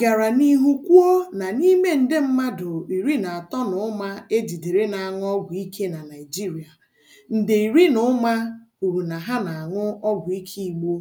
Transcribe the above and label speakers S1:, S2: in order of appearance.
S1: gara n'ihu kwuo na n'ime nde mmadụ iri na atọ na ụma ejidere jidere na-aṅụ ọgwụ ike na Naịjirịa, nde iri na ụma kwuru na ha
S2: na-aṅụ ọgwụ ike Igbo.